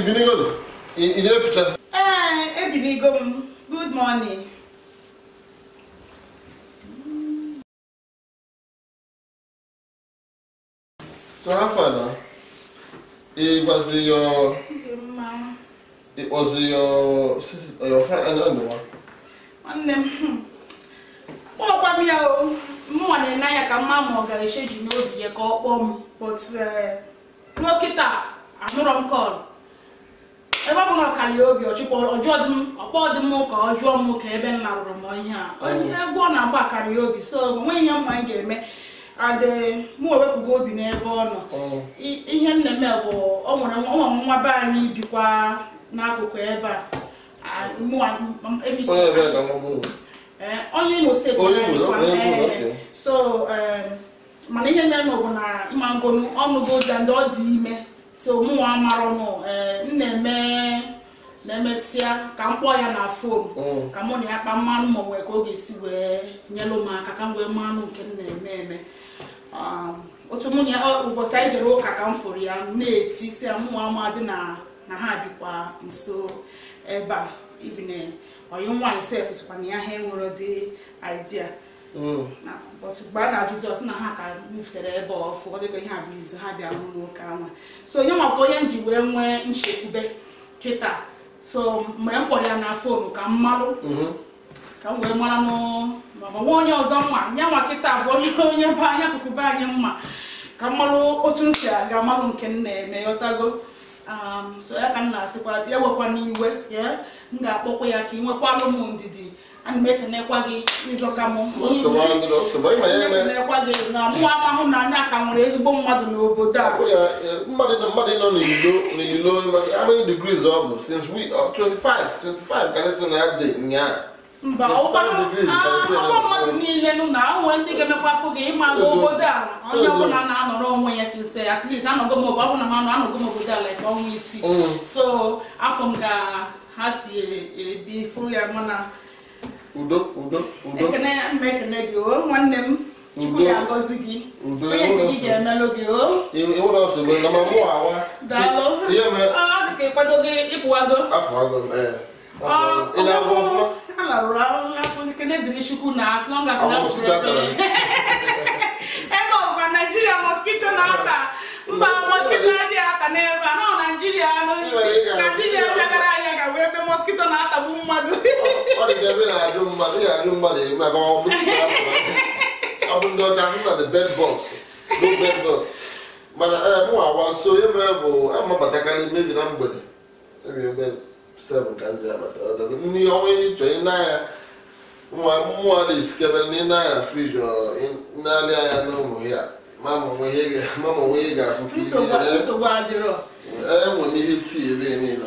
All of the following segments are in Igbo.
ibinigolo ị na-efichasị ee ebinigo m good morning so ha fada ịgwazi your ịkpọzi ya ọfranwa nwanne m m ya o mụnwa na ya ka mma ọ ga-echeji n'obi ya ka ọ kpọọ but ruo kịta m kọlụ ebe ọ bụ na ọkara ya obi ọkpọ dị m ka ọ jụọ m ka ebe nna rụrụ m ihe a onye egwu ọ na-agba akara ya obi so onweghị ihe mma m ga-eme adị mụ ewepụgo obi n'ebe ọ nọ ihe m na eme bụ ọ nwere nwa be anyị bikwa n'akụkụ ebe a e, onye imo steeti so mana ihe mere bụ na mangonu ọnụgo ụja ndị ọ dị ime so mụnwa marụ eh, m na-eme na-emesịa ka m kpọọ ya na fon mm. ka mụ na ya kpa mmanụ ma nwee ka ọ ga-esi wee nyelụ m aka ka m wee mmanụ nke m na-eme eme um, otu mụ na ya ụbọchị anyị jere ụka ka m fụrụ ya na-eti si ya mụnwa ma dị na ha bikwa nso ebe a ivin oyi eh, nwaanyị sef sikwa na ya ha enwere dị idea mm. bọtụ mgbe a na-ajụzi ọsị na ha ka nyefere ebe ọfụ ọ dịka ihe a bụ izu ha bịara n'ụka nwa so nye nwakwa onye m ji wee nwee nchekwube kịta so mgbe m kpọrọ ya na fonu ka m malụ mhm. ka m wee mara nwa onye ọzọ mma nye nwa kịta bụ onye onye be anyị akụkụ be anyị mma ka m malụ otu m si aga malụ nke m na-eme yọtago um, so ya ka m na-asịkwa ya wekwa n'iwe m ga-akpọkwa ya ka ị nwekwalụ m ndidi ana m ekenekwa gị ịzọka m ekenekwa gị na mụ amahụ na anya ka nwere ezigbo mmadụ n'obodo a e, mmadụ nọ n'ilo how many degrees ọ bụ since we 25 uh, 25 ka letị na dị nyaa mba ụfọdụ mmadụ niile nụ na onwe ndị ga-emekwa afọ gị ịma n'obodo a onye ọbụla na-anọrọ onwe ya sinse at least anọgo m obodo ọbụla m anọ anọgo m obodo ala ka ọnwa isii mm. so afọ m ga ha si ebi e, furu ya mana udo udo udo ekene ya gị o oh, nwanne m chukwu ya agọzi gị onye nke gị ga-emelụ gị o oh. ịwụrụ nsogbu na ma mụ awa daalụ ihe mere ọ dị ka ịkwado gị ịpụwago apụwago m ee eh. ị na ọfụma a larụrụ dịrị chukwu na na ebe naijiria na-ata mba adịghị ata n'ebe a nọ naijiria naijiria ebe mọskito na-atagbu mmadụ ọ dị ebe na-ajụ mmadụ ya ajụ mmadụ ebe ọ bụ ndị ọcha ahụ na the bed box no bed box mana ee eh, mụ awa nso ebe bụ amabatakarị mebi na mgbede ebi ebe seven ka ndị abata ndị ọnwa ihe chọọ ị n'anya mmụọ na-esikebe ndị n'anya friji n'alị anya na ụmụ ya mama onwe ihe ga-afụ ka ihe eh, enwere ihe tii ebe niile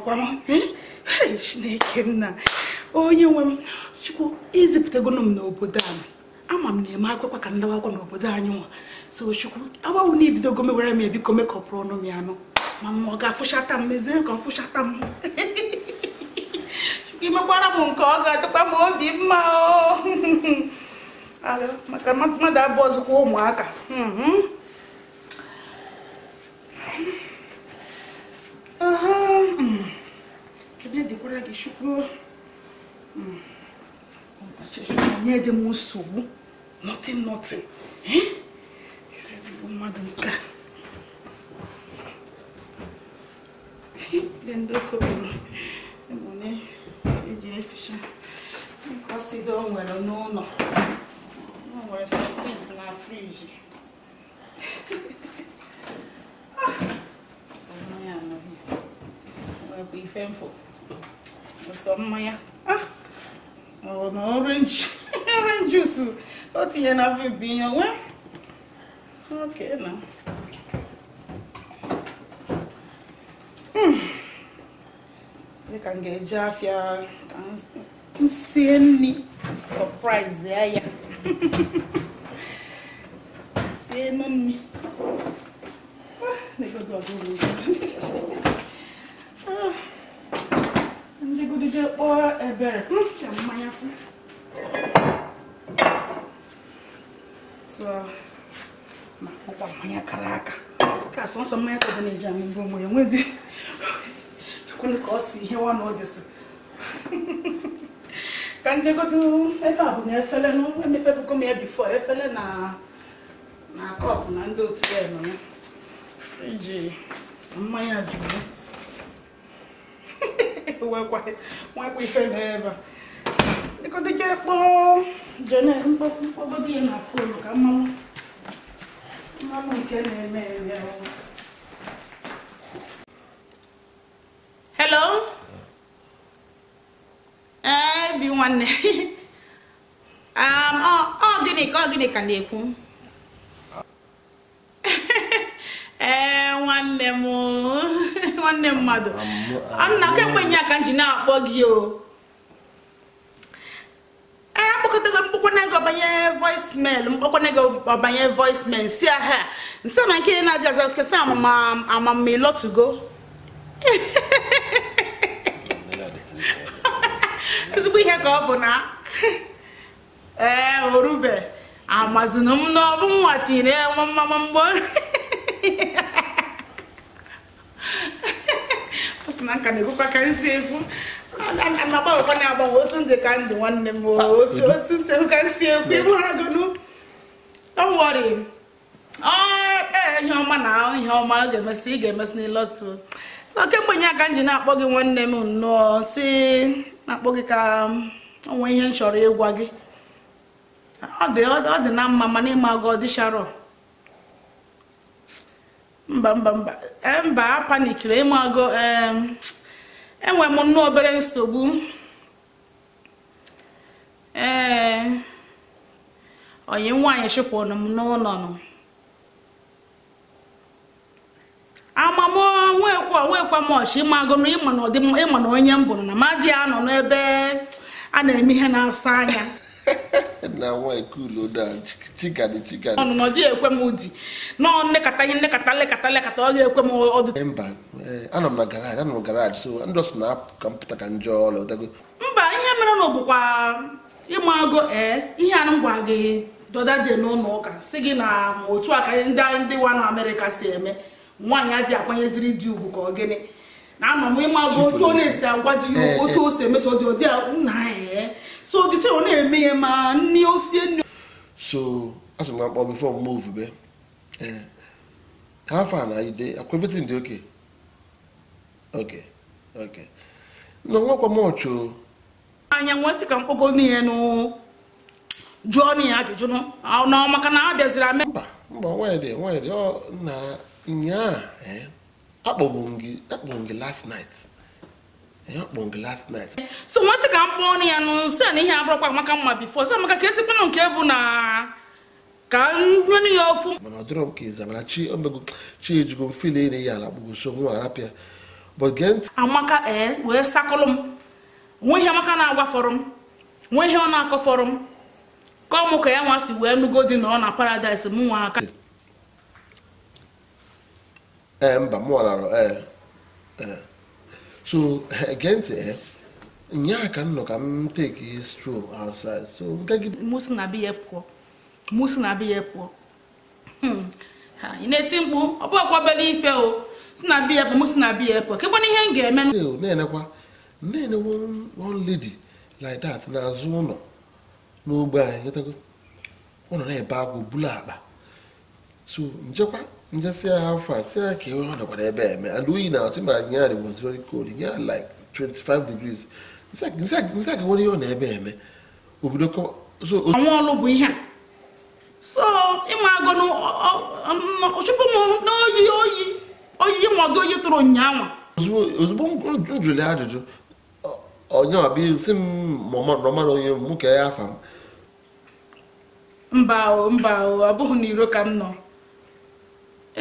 nọkwa m eh? chineke nna onye nwe m chukwu izipụtago m n'obodo a ama m na-eme akwụkwọ ka ndawa akwụkwọ n'obodo anyị nwa so chukwu agbanwe na ibidogo mewere m ebiko mekọpụrụ ọnụ m ya anụ ma ọ ga-afụchata m mezie ka ọ fụchata m chukwu imekwara m nke ọ ga-adịkwa m obi mma oh. maka mmadụ abụọ zụkwa ụmụaka uh Kidede kore gishukuru. Mm. Nye de mo sobu. Nothing, nothing. Eh? He says, "Go madam ka." Lendo ko mo. Mo eje fisha. Because he don't well no no. No well some things na fridge. Ah! be thankful sọ mmanya ọ na orange orange juice o tinye na afọ ibu ihe onwe ok na dịka m ga-eji afịa ka m sie nri surprise ya ya sie nri sọ mmanya ka ọ na-eji amị mbụ ụmụ ya nwedị kwụnụ ka ọ si ihe nwa na ọ dịsị ka njegodo ebe a bụ na efele nụ emepebugo m ya bifo efele na na kọpụ na ndị otu ya nọ ya friji mmanya jụrụ nwekwa ife na ebe dịkọdị ga kpọọ jene mkpọgodo ya na fonu ka mmanwụ mmanwụ nke na-eme eme ọnwụ nwanne um, ọ gịnị ka ọ gịnị ka na-ekwu ee nwanne m nwanne mmadụ nna kemgbe nye aka m ji na-akpọ gị o ee mkpọkọtago mkpọkwana gị ọbanye voicemail mkpọkwana gị ọbanye voicemail si aha nsị na nke na-adị azọ kesa amamma ịlọtugo ezigbo ihe ka ọ bụ na ee orube amazinu m n'ọbụ nwa tinyere ya mma mgbo ọ sị na nka na-ekwukwa ka nsi ekwu na-agbanwekwa na-agbanwe otu ndị ka ndị nwanne m otu otu sekwu ka nsi ekwu ịgbụragonu don't worry ihe ọma na ihe ọma ọ ga-emesị ị ga-emesị n'ịlọtụ so kemgbe nye aka m ji na-akpọ gị nwanne m nnọọ si na-akpọ gị ka ọnwa um, ihe m chọrọ ịgwa gị ọ dị na mma mana ịma gị ọ dịcharọ mba mba mba e, mba a panikiri ịma gị um, enwe m nnọọ obere nsogbu ee onye nwaanyị chụpụrụ m n'ụlọ amam onwekwa onwekwa mọchi ịmago ịmụ ịma na ọdịmma ịma na onye mbụ na ma dị anọ n'ebe a na-eme ihe na-asa anya ọnụnọ dị ekwe m ụdị nọọ nlekọta ihe ọ ga-ekwe m ọdụ eh, mba ihe mere na ọbụkwa agụ ee eh, ihe gị dọda dị n'ụlọ ụka si gị na otu aka ndị ndị wa na amerịka si eme nwaanyị adịghị akwanyeziri dị ugwu ka ọ gịnị na-anọ m ịma bụ otu ọ na-esi agwa dị ya eh, otu eh. o si emeso dị ọdị nna anyị eh. so dịte ọ na-eme ya ma nni osie nne. so asị m akpọ bifo mgbe ofube ha a na ide akwebeti ndị oke oke oke na nwakwa m ọchụ anya nwa sị ka mkpogo n'ihe nụ jụọ n'ihe ajụjụ n'ọmaka na abịaziri ame mba mba nwaanyị dị nwaanyị dị ọ na nnyaa akpọgbu m gị last night so nwa sị ka m kpọọ ọnụ ya nụ si na ihe abụrụkwa amaka mma bifo si amaka ka ezigbo nke bụ na ka nwenụ ya ofu mana ọ dịrọ m ka ịzabara chi omego chi ejigo m fil na ya ala kpụgoso eh, nwa arapịa amaka ee wee sakụlụ m nwee ihe amaka na agwa fọrọ m nwee ihe ọ na akọ fọrọ m ka ọ mụ ka ya nwa si wee nugo dị na ọ na paradaịs m nwa aka Eh, mba mụwalara ee eh, eh. so gee ntị nyaa ka m nọ ka m take stroll outside so nke gị musi na biya pụọ musi na biya pụọ hmm. ị na-eti mkpu ọ bụ ife o si na biya pụọ musi na biya pụọ kekwana ihe m ga-eme na-enekwa na one lady like that n'azụ ụlọ anyị ọ na-ebe bulu akpa so njekwa njesi agha afọ a ya ka ihe ebe eme and oyi na atụ ma anyị yarị was very cold nye like 25 degrees nsi ka ihe ọ na ebe eme obodo ọlụ bụ ihe a so ịma agụ chụpụ m n'oyi oyi oyi nwago oyi tụrụ ụnyaahụ ozugbo m jụrụ ajụjụ onye ọbịa si m nọmara onye mụ ka ya afa m mba mba ọ bụghị m nọ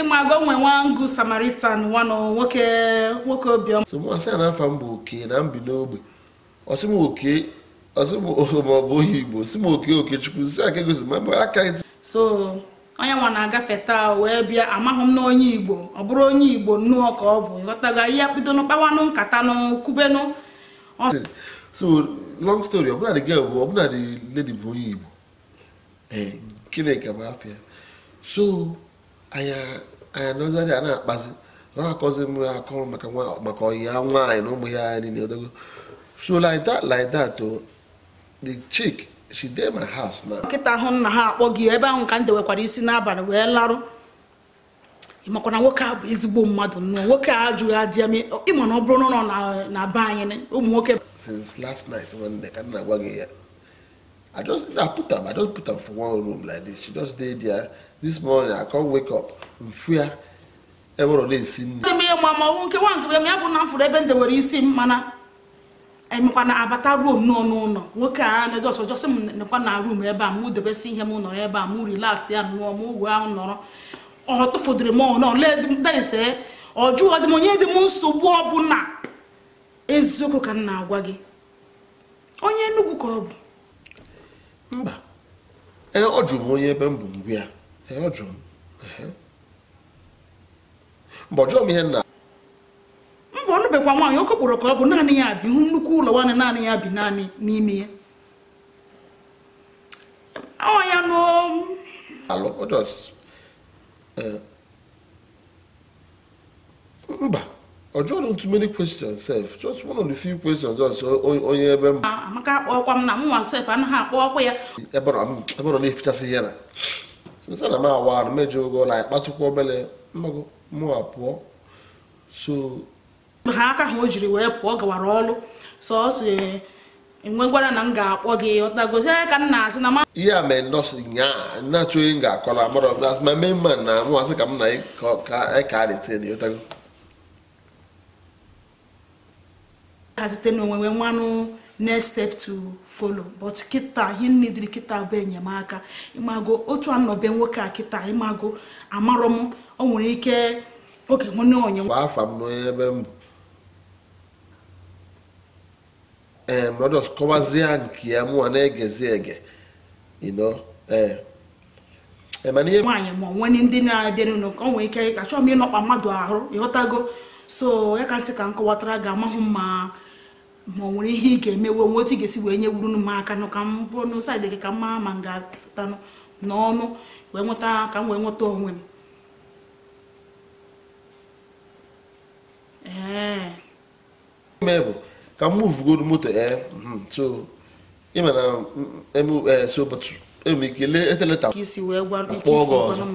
ịmago nwe nwa ngụ samaritan nwanụ nwoke nwoke obiọma somasị na afa m bụ oke na mbi n'ogbe oke maọbụ onye igbo si m oke okechukwu si aka egosi ma aka so onye nwa na-agafe taa wee bịa amaghị m n'onye igbo ọ bụrụ onye igbo nnụọ ka ọ bụ ịghọtaga ihe kpidonụ kpawanụ nkatanụ kubenụ so long story ọbụla the girl bụ ọbụla the bụ onye igbo ee eh, Chineke bụ afịa so anya nozi a na-akpazi ọ na-akọzi m akọ maka maka ọyi nwaanyị na ụmụ ya anya niile odogo so like that like that to oh, the chick she dey my house now. nkịta ahụ nna ha akpọ gị ebe ahụ ka m nwekwara isi n'abalị wee larụ ịmakwa na nwoke a bụ ezigbo mmadụ nnụọ nwoke a ajụghị adị eme ịma na ọ bụrụ na na be anyị ụmụ nwoke since last night nwanne ka m na-agwa gị ya i just i put am i just put am for one room like this she just dey there this morning i come wake up mfia ewere ole esi nri ndị mmiri ma ọnwụ nke nwa nke ya bụ na mfụrụ ebe ndewere isi mmana emekwa na abata ruo nnọọ n'ụlọ nwoke a Lagos ọjọsị m na rum ebe a mụ debesi ihe m nọrọ ebe a mụ rilas ya nụọ ahụ nọrọ ọ m ọ jụọ dị m onye dị m nsogbu ọbụla eziokwu ka m na-agwa gị onye ka ọ bụ mba ee ọ jụrụ m onye ebe m bụ ngwe ya ee ọ jụrụ m mba ọ m ihe nna mbọ ọ nụbekwa nwaanyị okokporo ka ọ bụ naanị ya bi nnukwu ụlọ nwaanyị naanị ya bi naanị n'ime ya ọ ya n'alụ mba ọ jụrụ too many questions sef just one of the few questions just onye ebe m amaka akpọkwa m na mụnwa sef anaghị akpọ ọkwa ya eberọ na-efichasị ihe na sesa na m awa na mejọ ogo na akpatukwa obele mmago mụ apụọ so ha aka ha o jiri wee pụọ gawara ọrụ sọsọ enwegwara na m ga-akpọ gị ọtagozi ka m na-asị na ihe a mee nọọsụ nyaa na-achọ onye m ga-akọla amarọ ma mee mma na mụnwa sị ka m na ka a na-ete ha site n'onwe wee nwanụ next step to follow but kịta ihe nidiri kịta bụ enyemaka ịmago otu anọbe nwoke a kịta ịmago amarọ m o nwere ike oke nwene onye afa m n'ebe m ee eh, mmadụ kọwazie nke ya mụwa na-egezi ege ino ee eh, eh, mana ihe nwaanyị ma nwere ndị na-abịa n'ụlọ ka ọ nwere ike achọọ m ịnọkpa mmadụ ahụ ịghọtago so ya ka nsị ka m kọwatara ga-amahụ mma ma ọ nwere ihe ị ga-emewe nwe otu ị ga-esi wee nye wuru m aka nụ ka m bụrụ n'ụsaidị gị ka m mara ma m ga-apụta n'ọnụ wee nweta ka m wee nweta onwe m ee bụ ka m muvugoro moto ee hmm, so so ụbọchị enwere ike lee eteleta ka isi wee gwara ike isi gwanụ m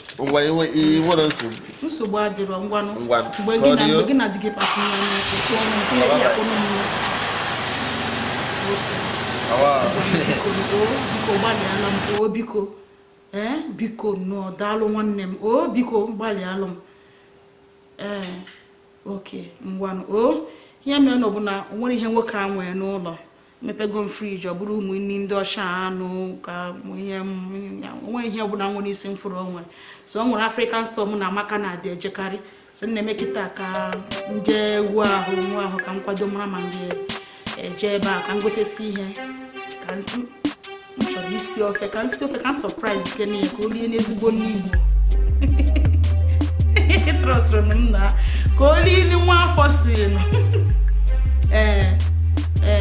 ngwa iwe nwere nsogbu nsogbu adịrọ ngwanụ mgbe gị na mgbe gị na di gị pasị n'ụkwụ nke ya kpọrọ m biko gbalịala m o biko ee biko nọọ daalụ nwanne m o biko gbalịalụ m ee oke ngwanụ o ya mere na ọ bụ na o nwere ihe nwoke a nwee n'ụlọ mepego m friji ọ bụrụ ụmụnne ndị ọcha anụ ka ihe onwe ihe ọbụla nwere isi m fụrụ onwe so ọ nwere afrịkan stọọ na amaka na-adị ejekarị so m na-eme kịta ka nje jee wu ahụ nwa ahụ ka m kwado mara ma m eje e, ebe a ka m gotesi ihe ka m chọrọ isi ofe ka nsi ofe ka m sọpraịz ike n'ihe ka o lie n'ezigbo n'igbo trọsịrị m nna ka o lie nwa afọ siri ee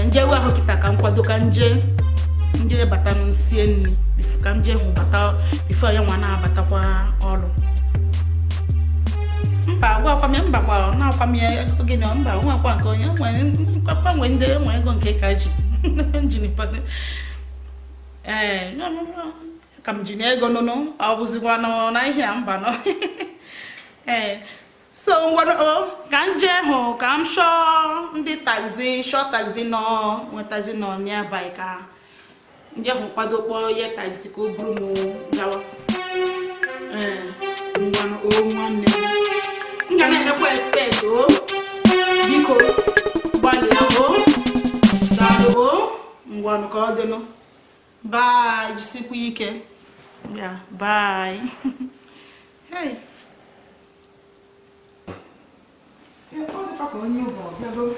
njewe ahụ kịta ka m kwado ka nje ndị bata nsie nri ka m jee hụ bata bifo ya nwa na-abatakwa ọrụ mba gwakwam ya mba gwa na-akwam ya ego gị na mba akwa nke onye gbanwe ndị nwe ego nke ka ji njinipado eh, ee ka m ji na ego nụnụ ọ bụzikwa na ihe a mba nọ ee eh, so ngwano oh, ka m jee hụ ka m shọọ taxi shọọ taxi nọ nwe taxi nọ n'abalị ka nje hụ kwado kpọọ ihe taxi ka o buru m gawa ee eh, ngwano o oh, nwanne m ga na-emekwa expect o oh. biko gbalịa o daalụ o ngwanụ ka ọ dịnụ bye jisikwa ike ya bye hey поклонів Бога.